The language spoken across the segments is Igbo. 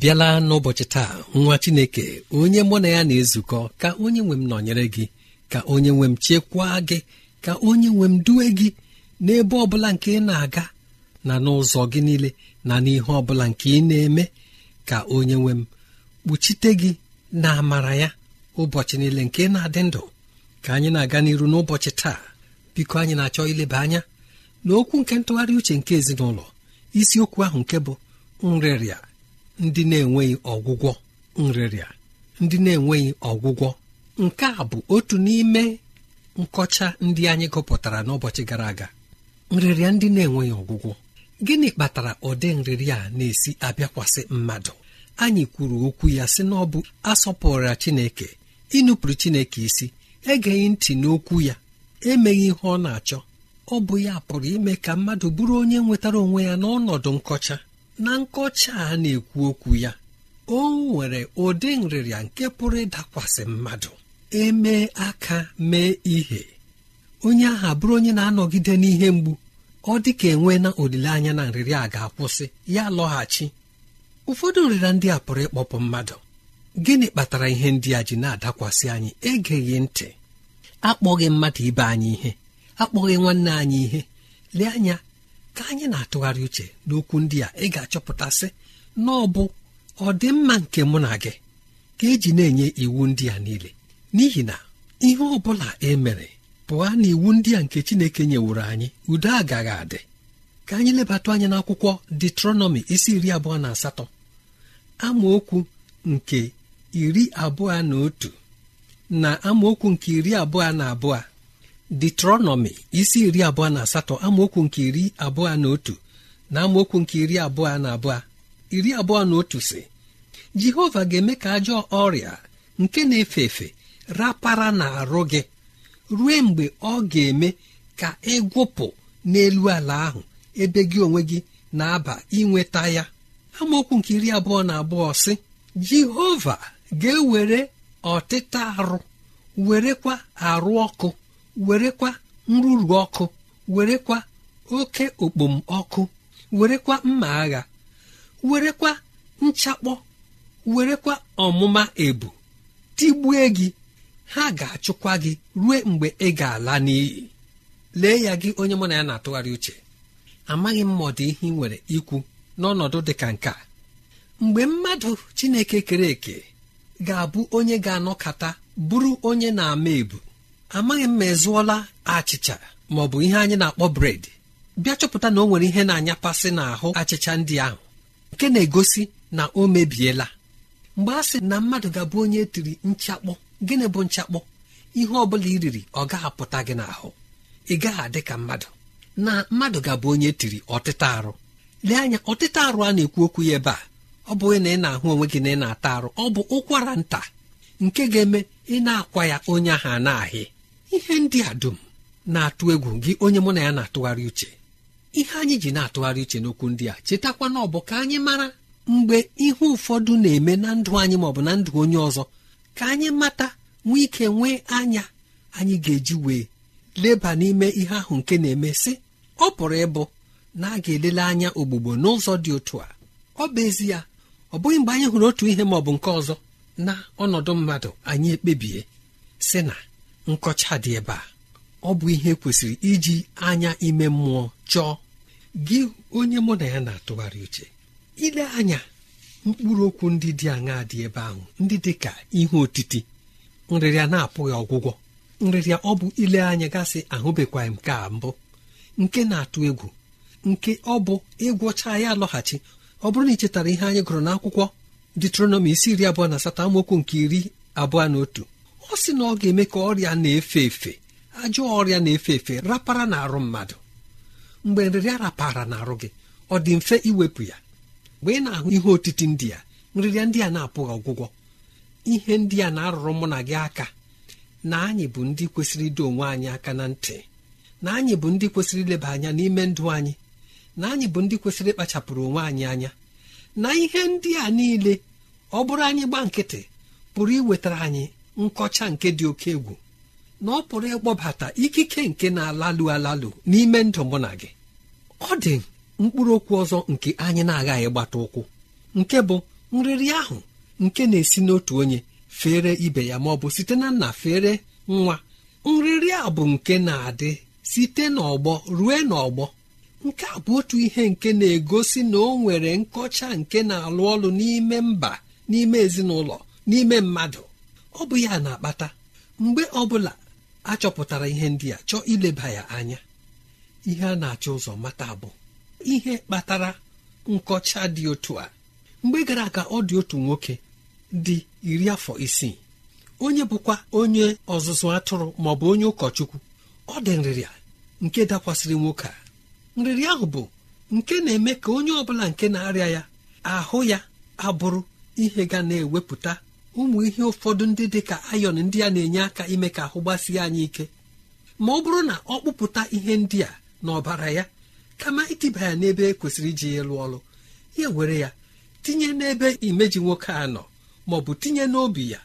bịala n'ụbọchị taa nwa chineke onye mụ na ya na-ezukọ ka onye nwe m nọnyere gị ka onye nwe m chekwaa gị ka onye nwe m duwe gị n'ebe ọ bụla nke ị na-aga na n'ụzọ gị niile na n'ihe ọ bụla nke ị na-eme ka onye nwe m kpuchite gị na amara ya ụbọchị niile nke na-adị ndụ ka anyị na-aga n'iru n'ụbọchị taa biko anyị na-achọ ileba anya n'okwu nke ntụgharị uche nke ezinụlọ isiokwu ahụ nke bụ nrịrịa ndị na-enweghị ọgwụgwọ nrịrịa ndị na-enweghị ọgwụgwọ nke a bụ otu n'ime nkọcha ndị anyị gụpụtara n'ụbọchị gara aga nrịrịa ndị na-enweghị ọgwụgwọ gịnị kpatara ụdị nrịrịa a na-esi abịakwasị mmadụ anyị kwuru okwu ya sị na ọ bụ asọpụrụra Chineke ịnụpụrụ Chineke isi egeghị ntị n'okwu ya emeghị ihe ọ na-achọ ọ bụ ya pụrụ ime ka mmadụ bụrụ onye nwetara onwe ya n'ọnọdụ nkọcha na nkọcha a na-ekwu okwu ya o nwere ụdị nrịrịa nke pụrụ ịdakwasị mmadụ emee aka mee ihe onye ahụ bụrụ onye na-anọgide n'ihe mgbu ọ dị ka enwe na olileanya na nrịrịa ga-akwụsị ya lọghachi ụfọdụ nrịrịa ndị a pụrụ ịkpọpụ mmadụ gịnị kpatara ihe ndị a ji na-adakwasị anyị egeghị ntị akpọghị mmadụ ibe anyị ihe akpọghị nwanne anyị ihe lee anya ka anyị na-atụgharị uche n'okwu ndị a ị ga-achọpụtasị na ọ bụ ọdịmma nke mụ na gị ka eji na-enye iwu ndị a niile n'ihi na ihe ọ bụla e mere pụọ na iwu ndị a nke Chineke nyeworo anyị udo agaghị adị ka anyị lebatụ anya n'akwụkwọ detronọmi isi iri abụọ na asatọ amaokwu nke iri abụọ na otu na amaokwu nke iri abụọ na abụọ detronọmi isi iri abụọ na asatọ amaokwu nke iri abụọ na otu na amaokwu nke iri abụọ na abụọ iri abụọ na otu si jehova ga-eme ka ajọ ọrịa nke na-efe efe rapara na arụ gị rue mgbe ọ ga-eme ka ịgwụpụ n'elu ala ahụ ebe gị onwe gị na-aba inweta ya amaokwu nke iri abụọ na abụọ si jehova ga-ewere ọtịta arụ werekwa arụ ọkụ werekwa nrụrụ ọkụ werekwa oke okpomọkụ werekwa mma agha werekwa nchakpọ werekwa ọmụma ebu tigbue gị ha ga-achụkwa gị ruo mgbe ị ga-ala n'iyi lee ya gị onye mụ na ya na-atụgharị uche amaghị m ma ihe ị nwere ikwu n'ọnọdụ dị ka nke a mgbe mmadụ chineke kere eke ga-abụ onye ga-anọkata bụrụ onye na-ama ebu amaghị m ma ezụọla achịcha ma ọ bụ ihe anyị na-akpọ bred bịa chọpụta na o nwere ihe na-anyapasị n'ahụ achịcha ndị ahụ nke na-egosi na o mebiela mgbe a sị na mmadụ ga-abụ onye tiri nchakpọ gịnị bụ nchakpọ ihe ọ bụla i riri ọ gaghị apụta gị n'ahụ ị gaghị adị ka mmadụ na mmadụ ga-abụ onye tiri ọtịta arụ lee anya ọtịta arụ a na-ekwu okwu ya ebe a ọ bụghị na ị na-ahụ onwe gị na ị na-ata arụ ọ bụ ụkwara nta nke ga-eme ị na-akwa ya onye ahụ a na-ahị ihe ndị a dum na-atụ egwu gị onye mụ na ya na-atụgharị uche ihe anyị ji na-atụgharị uche n'okwu ndị a chetakwa na ọbụ ka anyị mara mgbe ihe ụfọdụ na-eme na ndụ anyị maọbụ na ndụ onye ọzọ ka anyị mata nwee ike nwee anya anyị ga-eji wee leba n'ime ihe ahụ nke na-eme sị ọ pụrụ ịbụ na a ga-elele anya ogbugbo n'ụzọ dị otu a ọ bụ ezie ọ bụghị mgbe anyị hụrụ otu ihe maọbụ nke ọzọ na ọnọdụ mmadụ anyị ekpebie sị na nkọcha dị ebe a ọ bụ ihe kwesịrị iji anya ime mmụọ chọọ gị onye mụ na ya na-atụgharị uche ile anya mkpụrụ okwu ndị dị aṅaa dị ebe ahụ ndị dị ka ihe otiti nrịrịa na-apụghị ọgwụgwọ nrịrịa ọ bụ ile anya gasị ahụbekwaghị m ka mbụ nke na-atụ egwu nke ọ bụ ịgwọcha ya alọghachi ọ bụrụ na ị chetara ihe anyị gụrụ n'akwụkwọ akwụkwọ isi iri abụọ na asatọ amaokwu nke iri abụọ na otu ọ sị na ọ ga-eme ka ọrịa na-efe efe ajọ ọrịa na-efe efe rapara n'arụ mmadụ mgbe nrịrịa rapara n'arụ gị ọ dị mfe iwepụ ya mgbe ị na-ahụ ihe otiti ndị a nrịrịa ndị a na-apụghị ọgwụgwọ ihe ndị a na-arụrụ mụ na gị aka na anyị bụ ndị kwesịrị ido onwe anyị aka na ntị na anyị bụ ndị kwesịrị ileba anya n'ime ndụ anyị na anyị bụ ndị kwesịrị ịkpachapụrụ onwe anyị anya na ihe ndị a niile ọ bụrụ anyị gba nkịtị pụrụ iwetara anyị nkọcha nke dị oke egwu na ọ pụrụ ịkpọbata ikike nke na-alalụ alalụ n'ime ndụ mụ na gị ọ dị mkpụrụ okwu ọzọ nke anyị na-agaghị gbata ụkwụ nke bụ nrịrị ahụ nke na-esi n'otu onye fere ibe ya ma ọ bụ site na nna fere nwa nrịrị a bụ nke na-adị site n'ọgbọ rue n'ọgbọ nke a bụ otu ihe nke na-egosi na o nwere nkọcha nke na-alụ ọlụ n'ime mba n'ime ezinụlọ n'ime mmadụ ọ bụ ya na-akpata mgbe bụla a chọpụtara ihe ndị a chọọ ileba ya anya ihe a na-achọ ụzọ mata bụ ihe kpatara nkọcha dị otu a mgbe gara aga ọ dị otu nwoke dị iri afọ isii onye bụkwa onye ọzụzụ atụrụ ma ọ bụ onye ụkọchukwu ọ dị nrịrịa nke dakwasịrị nwoke a nrịrịa ahụ bụ nke na-eme ka onye ọ bụla nke na-arịa ya ahụ ya abụrụ ihe ga na-ewepụta ụmụ ihe ụfọdụ ndị dị ka ayọn ndị a na-enye aka ime ka ahụ gbasie anyị ike ma ọ bụrụ na ọ kpụpụta ihe ndị a n'ọbara ya kama itiba ya n'ebe e kwesịrị iji ya lụọ ọrụ ya were ya tinye n'ebe imeji nwoke a nọ ma ọ bụ tinye n'obi ya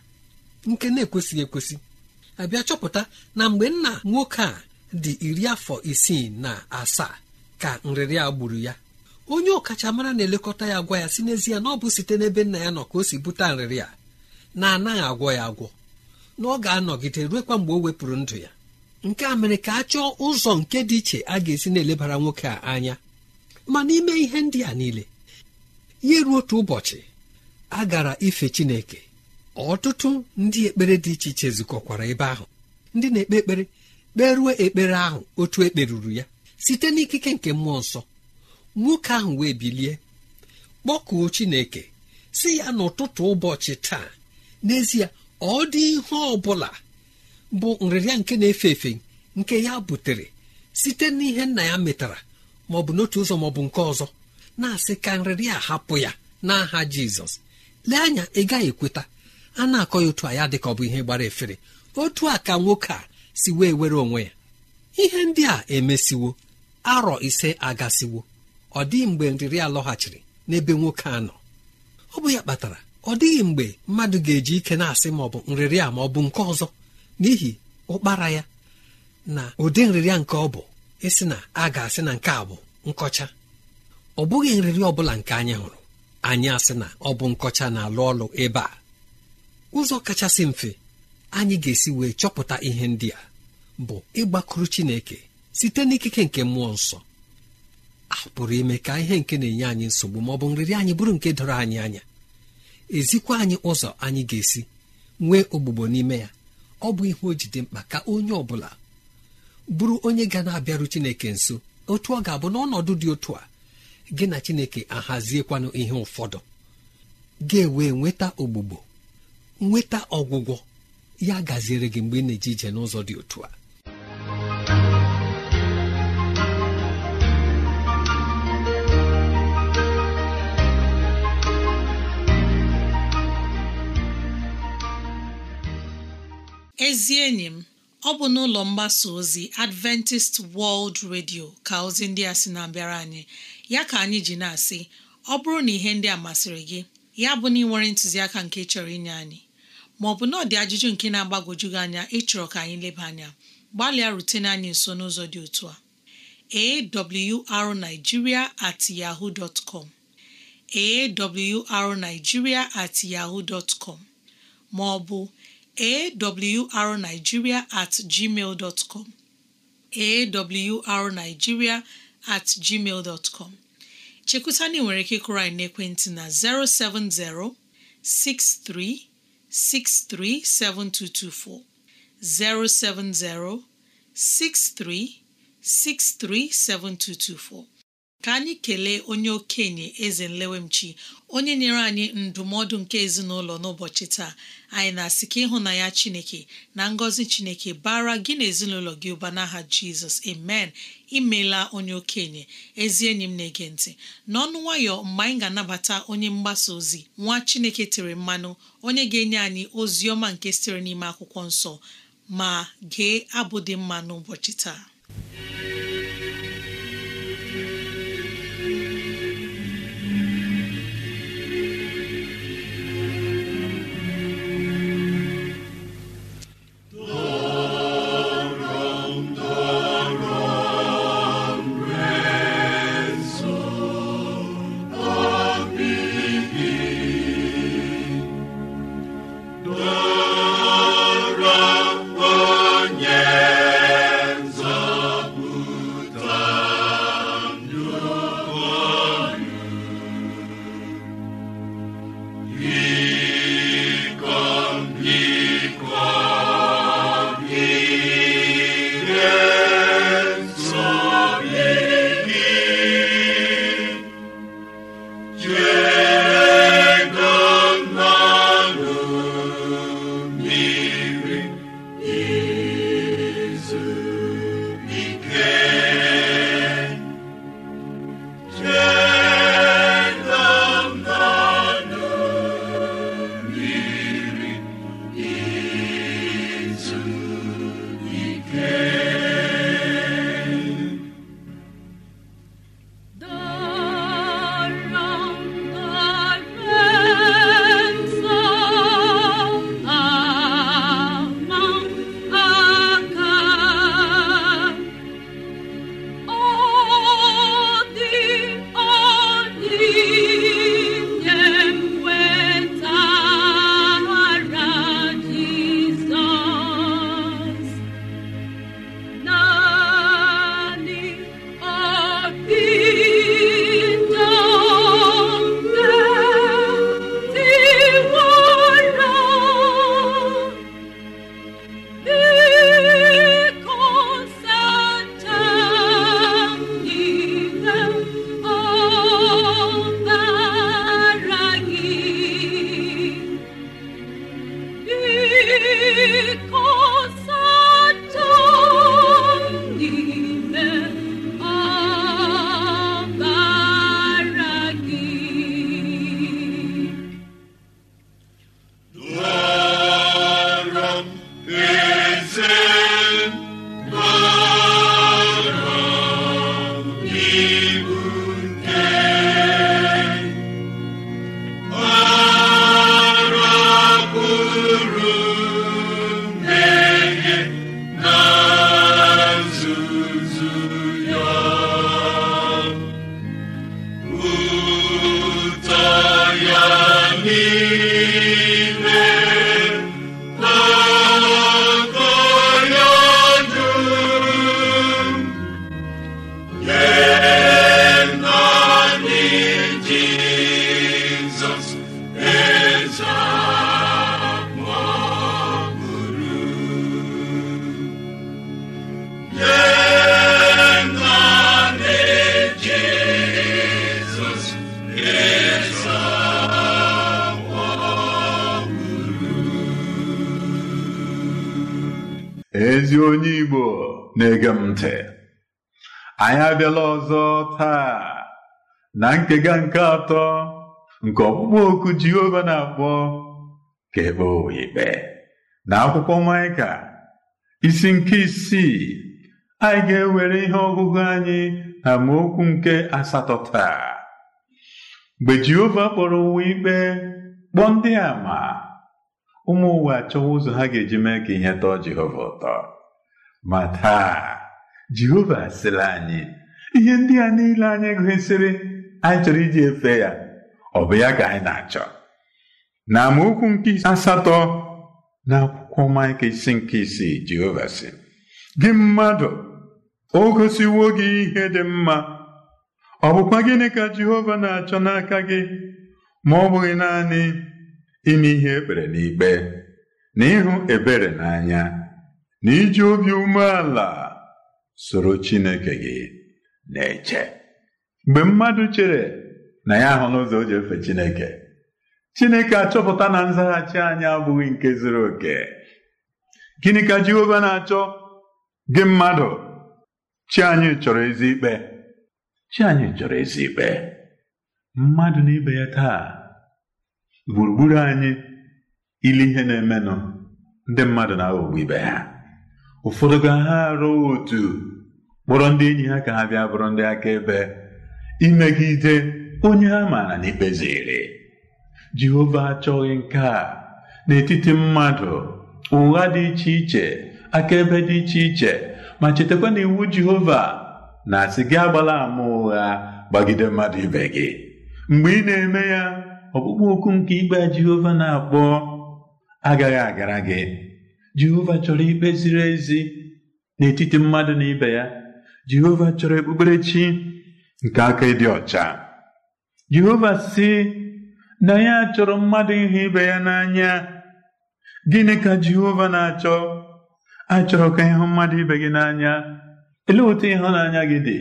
nke na-ekwesịghị ekwesị abịa chọpụta na mgbe nna nwoke a dị iri afọ isii na asaa ka nrịrị a gburu ya onye ọkachamara na-elekọta ya gwa ya si n'ezie na ọ bụ site n'ebe nna ya nọ ka o si bute nrịrị a na anaghị agwọ ya agwọ na ọ ga-anọgide ruekwa mgbe o wepụrụ ndụ ya nke a mere ka a chọọ ụzọ nke dị iche a ga-esi na-elebara nwoke a anya ma n'ime ihe ndị a niile ya ruo otu ụbọchị a gara ife Chineke ọtụtụ ndị ekpere dị iche iche zukọkwara ebe ahụ ndị na-ekpe ekpere kperuo ekpere ahụ otu ekperuru ya site n'ikike nke mmụọ nsọ nwoke ahụ wee bilie kpọkuo Chineke si ya n'ụtụtụ ụbọchị taa n'ezie ọ dị ihe ọ bụla bụ nrịrịa nke na-efe efe nke ya butere site n'ihe nna ya metara ma ọ bụ n'otu ụzọ ma ọ bụ nke ọzọ na-asị ka nrịrịa hapụ ya n'aha jizọs lee anya ị gaghị ekweta a na-akọ ya otu a ya dị ka ọ bụ ihe gbara efere otu a ka nwoke a si wee were onwe ya ihe ndị a emesiwo arọ ise agasiwo ọ dị mgbe nrịrịa lọghachiri n'ebe nwoke a nọ ọ bụ ya kpatara ọ dịghị mgbe mmadụ ga-eji ike na-asị ma ọ bụ nrịrịa ma ọ bụ nke ọzọ n'ihi ụkpara ya na ụdị nrịrịa nke ọ bụ ịsị na a ga-asị na nke a bụ nkọcha ọ bụghị nrịrị ọ bụla nke anyị hụrụ anyị asị na ọ bụ nkọcha na-alụ ọlụ ebe a ụzọ kachasị mfe anyị ga-esi wee chọpụta ihe ndị a bụ ịgbakụrụ Chineke site n'ikike nke mmụọ nsọ a pụrụ ime ka ihe nke na-enye anyị nsogbu ma ọ bụ nrịrị anyị bụrụ nke doro anyị anya ezikwa anyị ụzọ anyị ga-esi nwee ogbugbo n'ime ya ọ bụ ihe ojide mkpa ka onye ọ bụla bụrụ onye ga na-abịaru chineke nso otu ọ ga-abụ n'ọnọdụ dị otu a gị na chineke ahaziekwanụ ihe ụfọdụ ga-ewe nweta ogbugbo nweta ọgwụgwọ ya gaziere gị mgbe ị na-eje ije n'ụzọ dị otu a ezi enyi m ọ bụ n'ụlọ mgbasa ozi Adventist World Radio ka ozi ndị a sị na-abịara anyị ya ka anyị ji na-asị ọ bụrụ na ihe ndị a masịrị gị ya bụ na ị nwere ntụziaka nke chọrọ inye anyị ma ọ bụ na ọ dị ajụjụ nke na-agbagwoju gị anya ịchọrọ ka anyị leba anya gbalịa rutene anyị nso n'ụzọ dị otu a arigiria at yaho com awrnigeria at yaho dot com ma ọ bụ awrnigeria at gmail dot com awrnigeria at gmail dot com chekwuta na nwere ike ịkụrụ anyị n'ekwentị na 070 6363 7224 070 63 7224 ka anyị kelee onye okenye eze nlewemchi onye nyere anyị ndụmọdụ nke ezinụlọ n'ụbọchị taa anyị na-asị ka ịhụnanya chineke na ngọzi chineke bara gị na ezinụlọ gị ụba n'aha jizọs amen imela onye okenye ezi enyi m na-ege ntị n'ọnụ nwayọ mgbe anyị ga-anabata onye mgbasa ozi nwa chineke tere mmanụ onye ga-enye anyị ozi ọma nke sitere n'ime akwụkwọ nsọ ma gee abụ dị mma n'ụbọchị taa na nkega nke atọ nke ọkpụkpọ oku Jehova na-akpọ ka ebe ikpe na akwụkwọ Maịka isi nke isii anyị ga-ewere ihe ọgụgụ anyị na amaokwu nke asatọ taa mgbe Jehova kpọrọ ụwa ikpe kpọọ ndị ama ụmụ ụwa achọwa ụzọ ha ga-eji mee ka ihe tọọ Jehova ụtọ ma taa Jehova sịrị anyị ihe ndị a niile anyị gụsịrị anyị chọrọ iji efe ya ọ bụ ya ka anyị na-achọ na amaokwu nke asatọ na akwụkwọ maịka isi nke isii Jehova sị gị mmadụ o gosiwo gị ihe dị mma ọ bụkwa gịnị ka Jehova na-achọ n'aka gị ma ọ bụghị naanị ime ihe ekpere n'ikpe na ịhụ ebere n'anya na iji obi umeala soro Chineke gị na-eche mgbe mmadụ chere na ya ahụ n'ụzọ o ji efe Chineke Chineke achọpụta na nzaghachi anyị abụghị nke zuru oke gịnị ka Jehova na-achọ gị mmadụ chi anyị chọrọ ezi ikpe chi anyị chọrọ ezi ikpe mmadụ na ibe ya taa gburugburu anyị ile ihe na-emenụ ndị mmadụ na-aghọgbu ibe ha ụfọdụ ga ha arụ otu kpọrọ ndị enyi ha ka ha bịa bụrụ ndị akaebe imegide onye ha maara na ikpe ziri jehova achọghị nke a n'etiti mmadụ ụgha dị iche iche akaebe dị iche iche ma chetakwa na iwu jehova na-asị gị agbala ama ụgha gbagide mmadụ ibe gị mgbe ị na-eme ya ọkpụkpụ okwu nke ikpe jehova na-akpọ agaghị agara gị jehova chọrọ ikpe ziri ezi n'etiti mmadụ na ibe ya jehova chọrọ okpukperechi nke aka ịdị ọcha Jehova sị na ya achọrọ mmadụ ịhụ ibe ya n'anya gịnị ka Jehova na-achọ achọrọ ka ịhụ mmadụ ibe gị n'anya elee otu ịhụnanya gị dị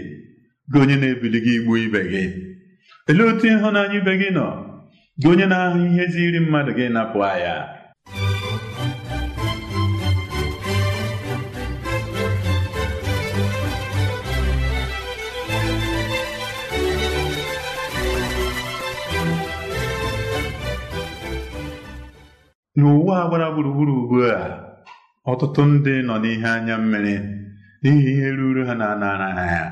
gị onye na-ebili gị igbu ibe gị elee otu ịhụnanya ibe gị nọ gị onye na-ahụ ihe ziri mmadụ gị napụ ya n'ụwa a gbara gburugburu ugbu a ọtụtụ ndị nọ n'ihe anya mmiri n'ihi ihe ruru ha na-anara ha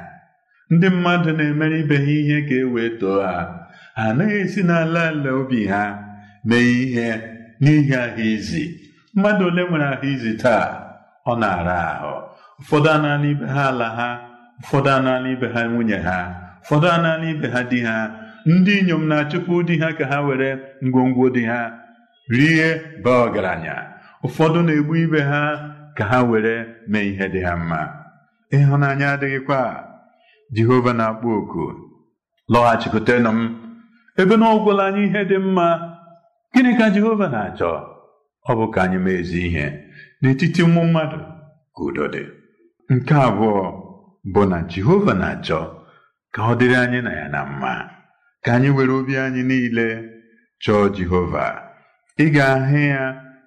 ndị mmadụ na-emere ibe ha ihe ka e wee too ha ha anaghị esi n'ala ala obi ha mee ihe n'ihi ahụ izi mmadụ ole nwere ahụ izi taa ọ na-ara ahụ ụfọdụ anaala ibe ha ala ha ụfọdụ anaala ibe ha nwunye ha ụfọdụ anaala ibe ha di ha ndị inyom na-achụpụ di ha ka ha were ngwongwo di ha rie baa ọgaranya ụfọdụ na-egbu ibe ha ka ha were mee ihe dị ha mma ịhụnanya adịghịkwa Jehova na-akpọ oku lọghachikwutenụ m ebe na ọgwụla anyị ihe dị mma gịnị ka Jehova na-achọ ọ bụ ka anyị mee ihe n'etiti ụmụ mmadụ ka udo dị nke abụọ bụ na Jehova na-achọ ka ọ dịrị anyị na ya na mma ka anyị were obi anyị niile chọọ Jehova ị ga-ahụ ya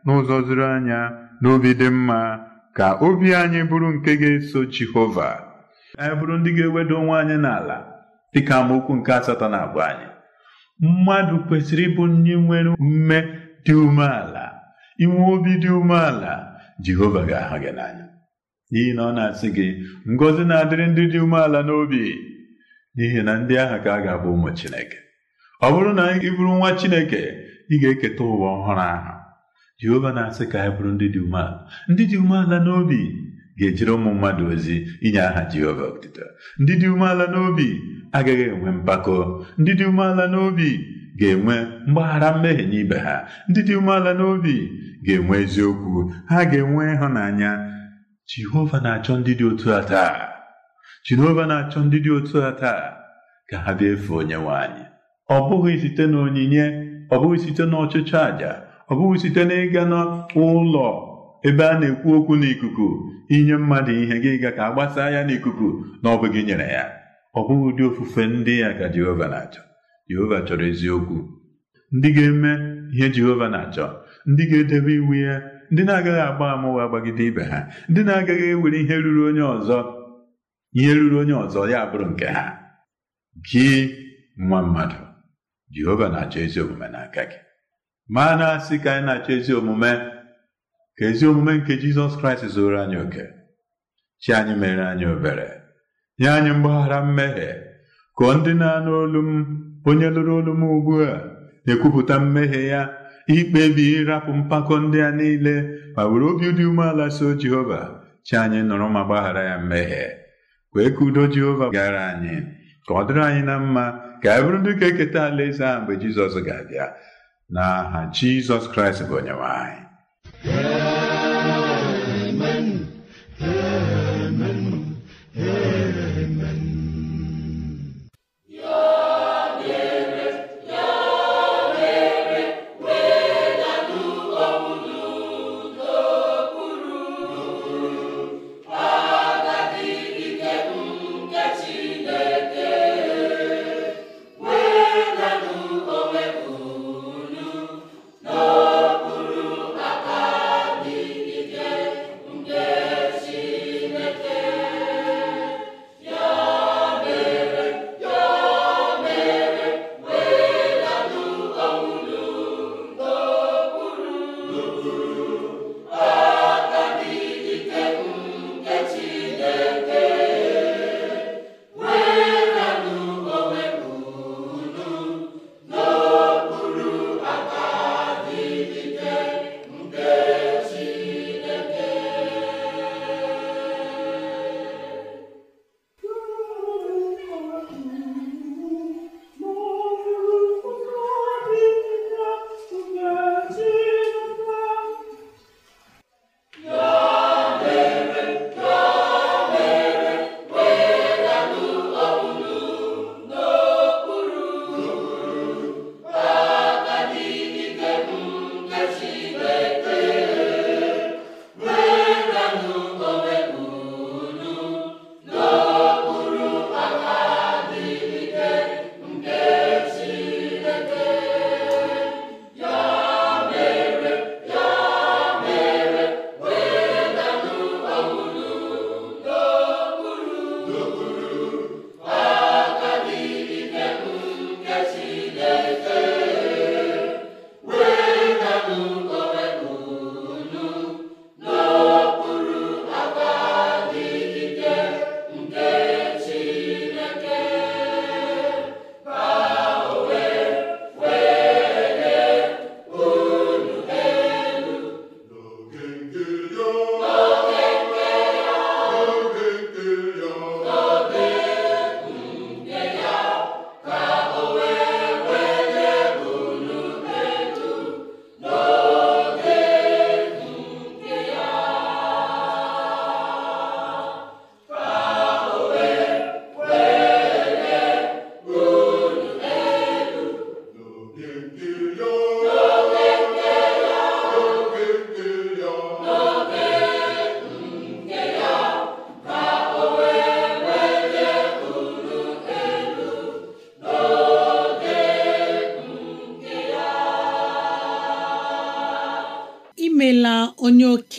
n'ụzọ zuru anya n'obi dị mma ka obi anyị bụrụ nke ga-eso Jehova anyị bụrụ ndị ga-ewedo onwe anyị n'ala dịka amaokwu nke asatọ na abụ anyị mmadụ kwesịrị ịbụ ndị nwere ume dị umeala inwe obi dị umeala Jehova ga-ahụ gị n'anya n'ihi na ọ na-asị gị Ngozi na-adịrị ndị dị umeala n'obi n'ihi na ndị ahụ ka a ga-abụ ụmụ Chineke ọ bụrụ na ị bụrụ nwa Chineke ị ga-eketa ụwa ọhụrụ ahụ jehova na-asị ka anyị bụrụ ndị dị umeala ndị dị umeala n'obi ga-ejere ụmụ mmadụ ozi inye aha jehova otito ndị dị umeala n'obi agaghị enwe mpako ndị dị umeala n'obi ga-enwe mgbaghara mmehie n'ibe ha ndị dị umeala n'obi ga-enwe eziokwu ha ga-enwe ịhụnanya jehova na-achọ ndị dị otu a taa jehova na-achọ ndị dị otu a taa ka ha bịa efe onye nwe anyị ọ bụghị site na onyinye. ọ bụghị site n'ọchịchị àjà ọ bụghị site n'ịga n'ụlọ ebe a na-ekwu okwu n'ikuku inye mmadụ ihe gị ga ka agbasa ya n'ikuku na ọ nyere ya ọ bụghị ụdị ofufe ndị ya ka Jehova na-achọ Jehova chọrọ eziokwu ndị ga-eme ihe Jehova na-achọ ndị ga-edebe iwu ya ndị na-agaghị agba amụwa ụgha gbagide ibe ha ndị na-agaghị ewere ihe ruru onye ọzọ ihe ruru onye ọzọ ya bụrụ nke ha gị nwa mmadụ jehova na-achọ ezi omume n'aka gị ma na asị ka anyị na-achọ ezi omume ka ezi omume nke jizọs kraịst zụrụ anyị oke chi anyị mere anyị obere nye anyị mgbaghara mmehie ka ndị na-anụ olu m onye lụrụ olu m ugbu a na-ekwupụta mmehie ya ikpebi ịrapụ mpako ndị a niile ma were obi dị umeala so jehova chi anyị nụrụ ma gbaghara ya mmehie kwee ka udo jehova gara anyị ka ọ dịrị anyị na mma ka e bụrụ ndị ka eketa alaeze a mgbe jizọs ga-abịa n'aha jizọs kraịst bụ onyenwe anyị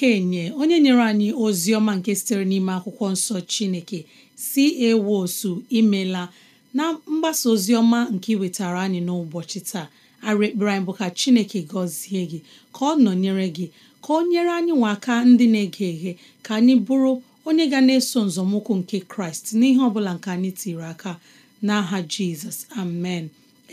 okenye onye nyere anyị ozi ọma nke sitere n'ime akwụkwọ nsọ Chineke si osu imela na mgbasa ozi ọma nke iwetara anyị n'ụbọchị taa arụ ekpere anyị bụ ka Chineke gọzie gị ka ọ nọnyere gị ka ọ nyere anyị nwa aka ndị na-ege eghe ka anyị bụrụ onye ga na-eso nzọmụkwụ nke Kraịst n'ihe ọ bụla nke anyị tiri aka n'aha Jizọs amen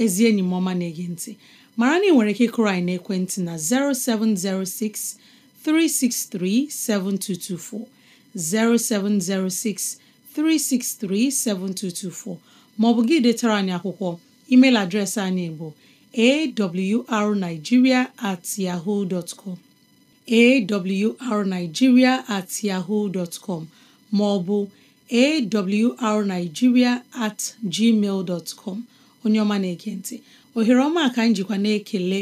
ezi enyi m ọma na-ege ntị mara na ị nwere ike kụrụ anyị n'ekwentị na 0706 363 7224 0706 363 7224 Ma ọ bụ gị detara anyị akwụkwọ email adreesị anyị bụ awrnigeria at yahoo dot com at yahoo dot com maọbụ awrnigeria at gmail onye ọma na-ekentị ohere ọma ka njikwa na-ekele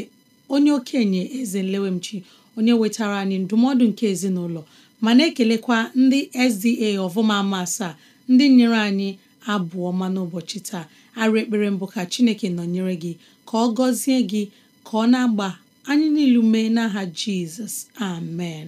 onye okenye eze nlewemchi onye wetara anyị ndụmọdụ nke ezinụlọ ma na-ekelekwa ndị SDA ọvụma ama asaa ndị nyere anyị abụọ ọma n'ụbọchị taa arụ ekpere mbụ ka Chineke nọnyere gị ka ọ gọzie gị ka ọ na-agba anyị niilu mee n'aha Jizọs amen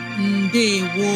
ndewo